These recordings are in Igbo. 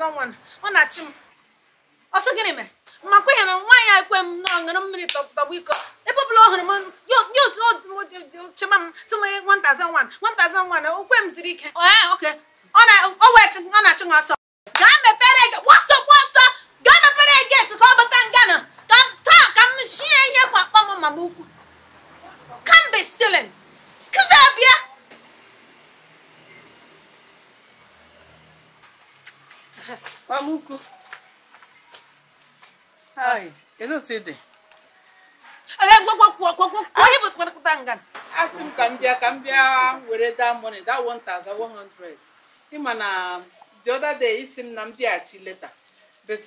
aza nwa ọ na-achị m ọsọ gịnị mere makwa ihe na nwaanyị a ekwe m na ọṅụrụ mmiri tọgbụ iko ebe ọbụla ọ hụrụ m ya otu chema m sị m nwata aza nwa nwata aza nwa na okwe m ziri ike ọ ah, na-achụ m ọsọ gaa mepere gbasọ gbasọ gaa mepere geti ka ọ bata ngana taa ka m shie ihe kwa akpọ m ma m ukwu kambe silin Maluco. Ai, eu não sei de. Olha, gwa gwa bụ gwa gwa. Ai, Asị m ka m bịa ka m bịa were 1100. Ị ma na the other isi m na m leta. But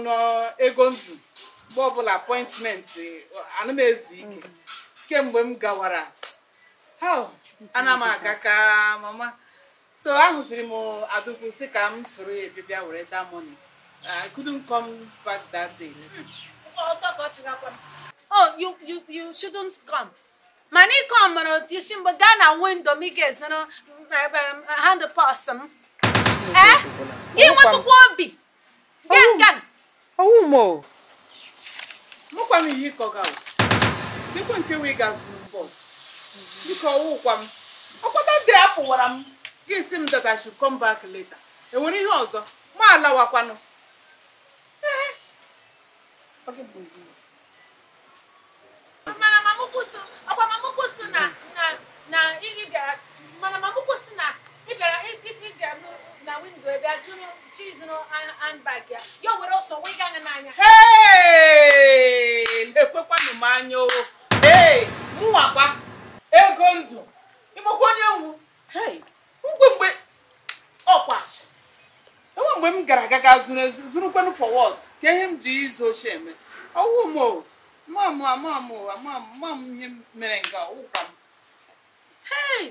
na ego ndụ mgbe ọbụla appointment Kemgbe m gawara. Ana m ka mama so ahụziri m adụgbu si ka m soro ya bịa were that money i couldn't come back that day. Hmm. oh you you you shouldn't come mana ịke ọmara otu isi mgbe gaa na windo m ị ga-ezoro hand pass m gị nwetụkwa obi gana ọnwụ m o mụkwa m ihe ịkọga dịkwa nke wee gazuru bọs biko ọwụkwa m ọkpọta ndị apụwara m gị si m that I should come back later enwere ihe ọzọ ma alawakwanụ agbamamụkwụ si na ị mana mamụkwụ si na ị bịara na windo ebe a zụrụ chi zụrụ handbag ya ya o were ọsọ wee gaa n'anya ekwekwanụ m anya o ee mụwakwa ego ndụ ịmakwa onye nwu hey mgbe m gara aga ga zụrụ zụrụkwanụ fọwọd ka ihe m ji izu ochie eme ọwụ m o ihe mere nga ọwụkwa m hey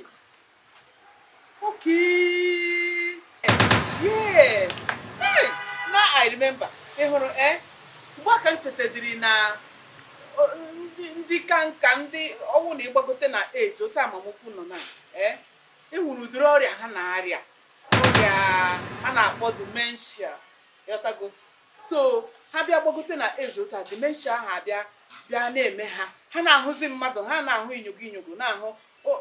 okay yes hey now i remember ị hụrụ eh? m na ndị ka nka ndị ọnwụ na ịgbagote na eji otu nọ na eh? e ọrịa ha na-arịa ọrịa a na-akpọ dimenshia yọtago so ha bịa gbagote na age ụta dimenshia ahụ abịa bịa na-eme ha ha na-ahụzi mmadụ ha na-ahụ inyogo inyogo na-ahụ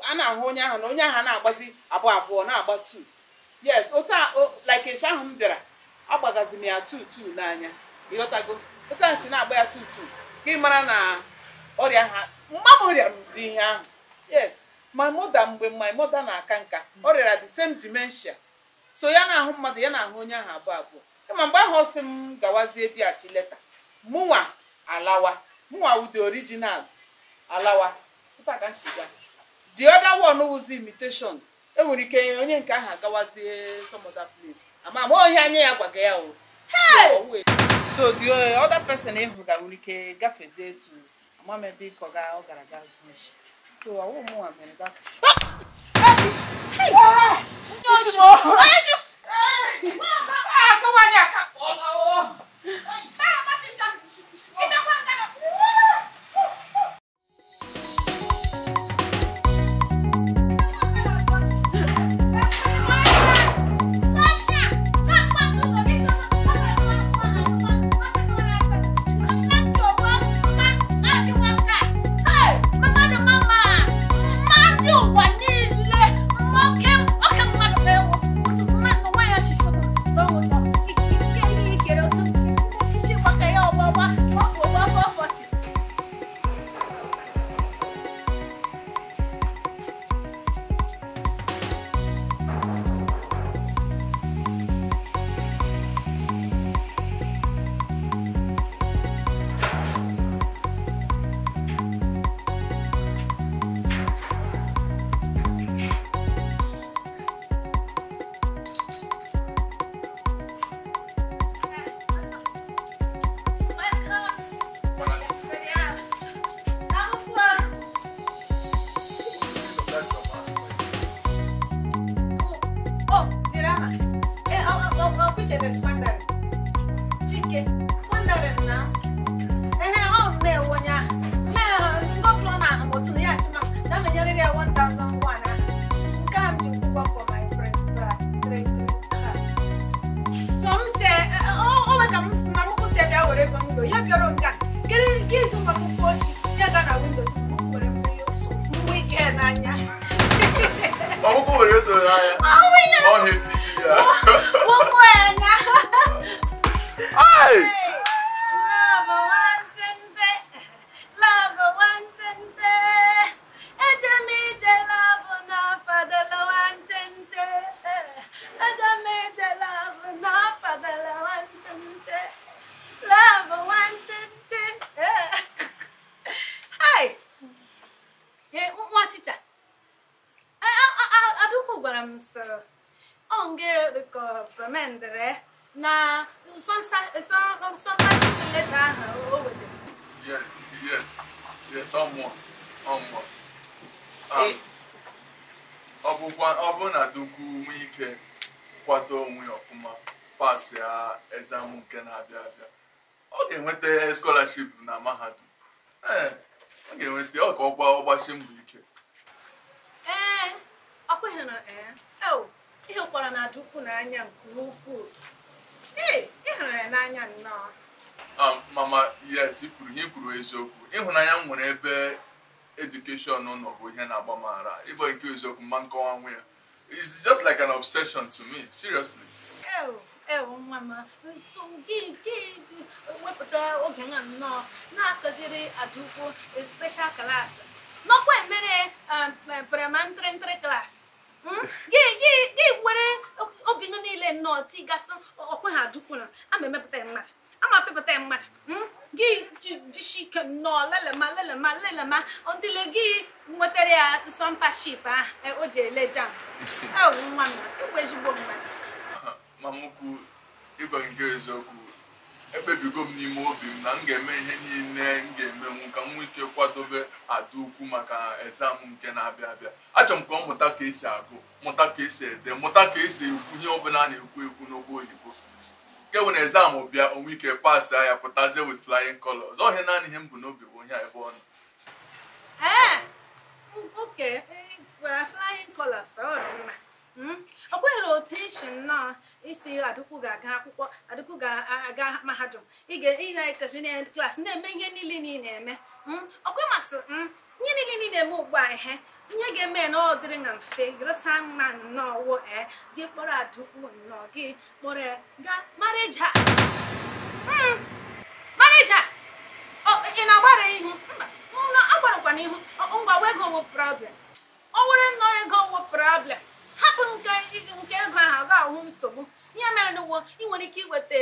a na-ahụ onye ahụ na onye ahụ na-agbazi abụọ abụọ na-agba tu yes ụta like ahụ m bịara agbagazi m ya tutu n'anya ịghọtago ụta nshi na-agba ya tutu gị mara na ọrịa ha mma m ọrịa ụdị ihe ahụ yes my mother mgbe my mother na-aka nka ọ rịara the same dementia so ya na-ahụ mmadụ ya na-ahụ onye ahụ abụọ abụọ kama mgbe ahụ ọsị m gawazie bịachi leta mụnwa alawa mụnwa wụ the original alawa the other one wụzi imitation enwere ike onye nke ahụ agawazie some other place ama ama onye anya ya gwaga ya o so the other person ịhụ ga nwere ike gafezie etu amam ebe ịkọ ga ọ gara ga zụọ so ọwụ mụnwa mere that ah! ike fundarina ehe ọ bụ na for ah. my friend so m si ọ bụ ka m si na mụkwụ si bịa were ego m do ya bịọrọ nke a kiri nke izu mgbe akwụkwọ ochi ya Adams ọngegokọpa mendere na sọmpashin leta ahụ o wetara yes yes ọmụọ ọmụọ ọ bụ na dukwu nwe ike kwado onwe ọfụma pasị a exam nke na-abịa abịa ọ ga-enweta scholarship na mahadum eh, ọ ga-enweta ọ ka ọ ọgbachi mbọ ike ịhụkwara na eh, oh, adukwu n'anya nke ukwuu ee hụrụ ya n'anya nnọọ um, mama yes kwuru, ihe kwuru eziokwu ịhụnanya m nwere ebe edukeshọn nọ bụ ihe na-agba m ara ịbụ nke eziokwu mma nkọwa nwa ya it's just like an obsession to me seriously ewu oh, oh, nwa m nso gị gị wepụta oge nwa nnọọ na-akụziri adukwu special class nọkwa emere um, eh, paramantri ntri klaasị ga-ewere obi nọ niile nnọọ tigasị ọkwe ha na ama emepụta mmadụ ama pepụta ya mmadụ hmm? gị jisi ike nnọọ lelema lelema lelema ndịle gị nwetara ya sọmpaship ahụ e, o ji ele jam nwa m ịbụ e ezigbo mmadụ mamukwu ịgwa nke eziokwu ekpebigo m n'ime obi m na m ga-eme ihe niile na ukwu maka exam nke na-abịa abịa achọrọ m ka ọ mụta ka esi agụ mụta ka esi ede mụta ka esi ekwu ihe ọbụla na-ekwu ekwu n'ogbo oyibo nke bụ na exam bịa onwe ike pass ya pụtazie with flying colors ọhịa naanị ihe m bụ n'obi bụ onye ebe ọ nọ Okay, flying colors, Hmm? ọ kweghịrị otu isi nnọọ isi adịkwu ga-aga akwụkwọ adịkwu ga-aga mahadum ịga-ekachi na klaasị na-eme ihe niile niile na-eme hmm? ọkwe masị hmm? ihe niile niile na-eme ugbu a ihe ihe ga-eme na ọ dịrị na mfe gresa mma nnọọ wo ee gị kpọrọ adịkwu nnọọ gị kpọrọ ga marija marịja ị na-agbara ihu mba agbarakwana ihu ngwa wego wo problem ọ were nnọọ ego wo problem hapụ nke nke ego ahụ aga ahụ nsogbu ihe mere n'ụwo ị nwere ike iweta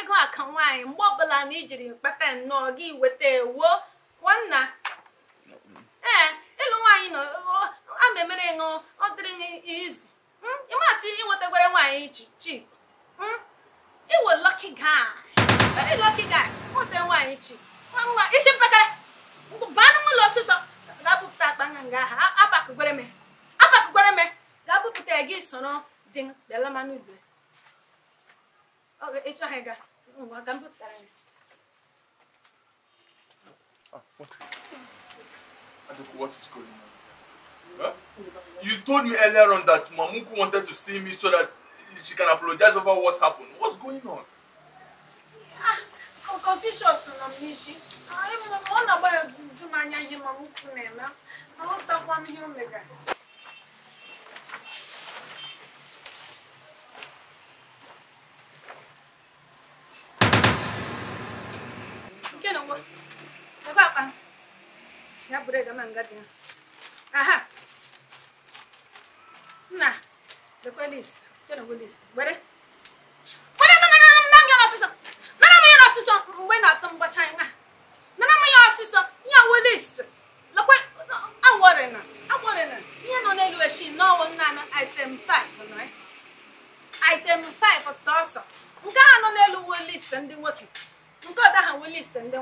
ego aka nwaanyị mgbe ọbụla na ijiri kpata nnọọ gị weta ewuo nwanna ee ịlụ nwaanyị na ama emere ṅụ ọ dịrị izu hmm? ịmasị inwetakwere nwaanyị chi iwe hmm? lọki guy lọki guy nweta nwaanyị chi nwa isi mpekere baa n'ụlọ ọsịsọ ga-apụpụta akpa nga nga ha apakụgwere me apakụgwere me dapụpụta gị soro dị bịala mmanụ igwe ịchọghị ga ngwa ka m ya Huh? You told me earlier on that Mamuku wanted to see me so that she can apologize over what happened. What's going on? Yeah, Confucius I'm m n'isi. Ọ na-agba ju m anya ihe Mamuku na-eme. Aghọtakwa m ihe o megara. na nna ya mgbe na-atọ mgbacha nwa nana m ya ọsịsọ ya we list na, ihe nọ n'elu echi n'ọwụ nna na item 5 nọ eh? item 5 sọsọ nke a nọ n'elu we list ndị nwoke nke ha list ndị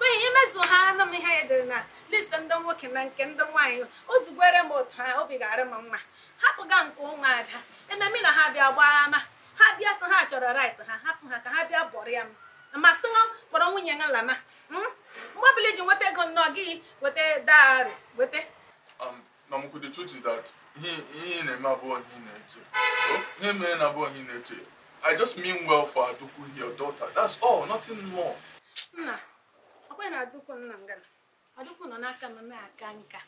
n'ihi imezu ha na m ihe ya edere na listi ndị nwoke na nke ndị nwanyị ozugbo m otu ha obi ga-arị m mma hapụga nke ụmụ ada ememe na ha bịa gbaa ama ha bịa sị ha chọrọ rait ha hapụ ha ka ha bịa bọrọ ya m masị kpọrọ nwunye ya lama hmm? mgbe ọbụla iji nweta ego nnọọ gị weta dari weta um, ekwe na adụkwu nna ngana adụkwu nọ n'aka m na-aka nka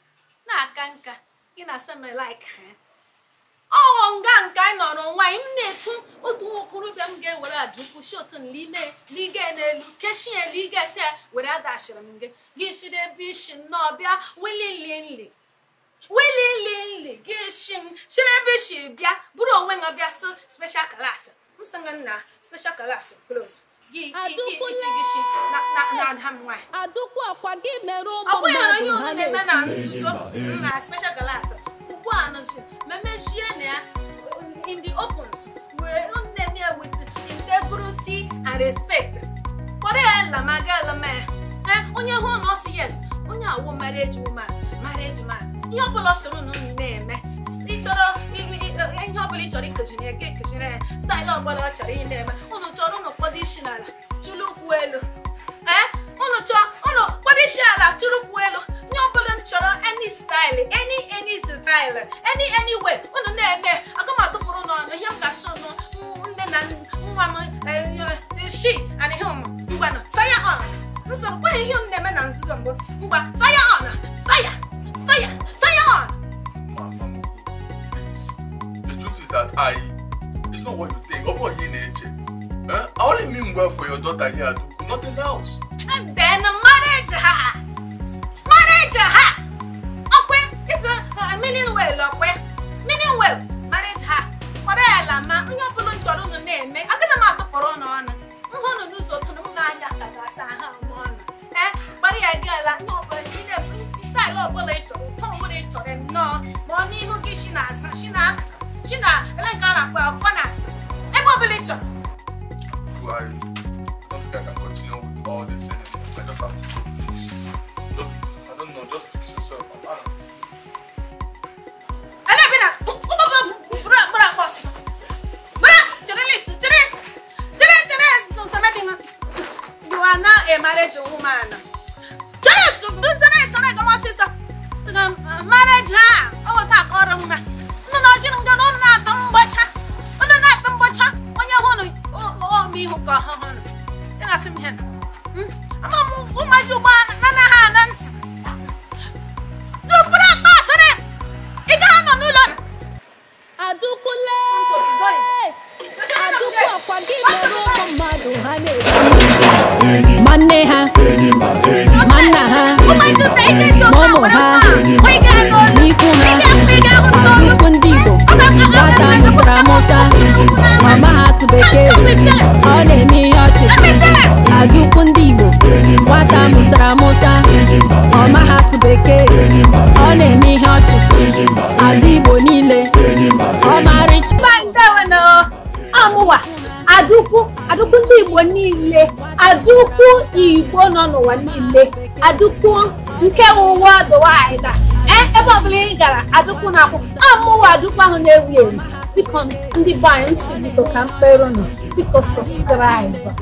na-aka nka gị na semelike ha ọghọ oh, nga nke anyị nọrọ nwa m na-etu otu okorobịa m ga-ewere adụkwu si otu nlige n'elu kechie ligesi ya were adachiri m gị gị shiri ebe isi nnọọ bịa wililinli wililinli gị shi m shiri ebe isi bịa bụrụ onwe ha bịa so speshal class m sị nna special class close adụkwu ọkwa gị mere ụmụ mmadụ ha na-eti onye hụ na ọ sị yes onye awụ marriage woman marriage man ihe ọbụla soro na unu na-eme ịchọrọ ihe ọbụla ị chọrọ ikejirie ya ga ekejiri ya staịlụ ọbụla ọ chọrọ ị na-eme isi n'ala tụlụ ụkwụ elu ee eh? ụnụ chọọ ụnụ kpọrọ isi ala tụlụ ụkwụ elu nye ọbụla m chọrọ any style any any style any any way ụnụ na-eme aga m atụpụrụ n'ọnụ ihe m ga-asụ nụ nne na nwa m eh, eh, shi ana ihe ụmụ ngwanụ fire on nsogbu kwaghị ihe m na-eme na nzuzo mbụ ngwa fire tọrẹ mi náà mo ní Ruki ṣì nà àṣà ṣì nà ṣì nà ẹlẹ́gàn ara pé ọkọ nà àṣà ẹ gbọ́ bí lè jọ. Buhari, I don't think You are now a marriage woman. gbasara nwa ngana unu na-atọ mgbacha onye hụ na ihu ka sara musa ọ maghị asụ bekee ọ na-eme ihe ọchị ada igbo niile ọmarịcha amụwa adụkwu adụkwu ndị igbo niile adụkwu igbo nọ n'ụwa niile adụkwu nke ụwa dụwaịda e, ebe ọbụla ị gara adụkwu na akwụkwọ amụwa adụkwu ahụ na-ewu ewu sikọ ndị be anyị m si biko ka mkperụnụ biko sọskraiba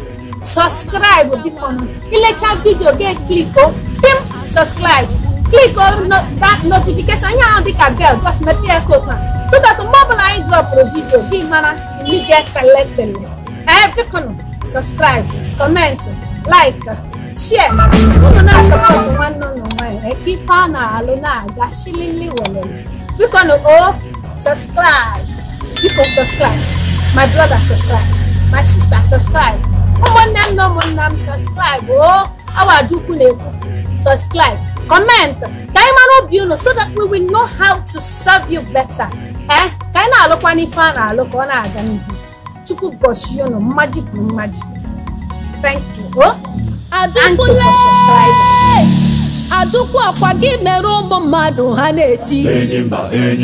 subscribe bikono ilecha video ge click o pim subscribe click on that notification yan on the bell just make it go to so that mobile i drop the video be mara me get collected eh bikono subscribe comment like share unu na support one no no one e ki fa na alu na aga shilili wele bikono o subscribe biko subscribe my brother subscribe my sister subscribe ụmụnne m na ụmụnna m sọskraịbụ o oh, awadukwu na-ekwu subscribe, comment, ka anyị mara obi unu so that we will know how to serve you better. Eh? ka anyị na-alụkwa n'ife a na-alụ ka ọ na-aga n'ihu chukwu gọchie unu mmaji bụ mmaji thank you o adukwule adukwu ọkwa gị mere ụmụ mmadụ ha na-eti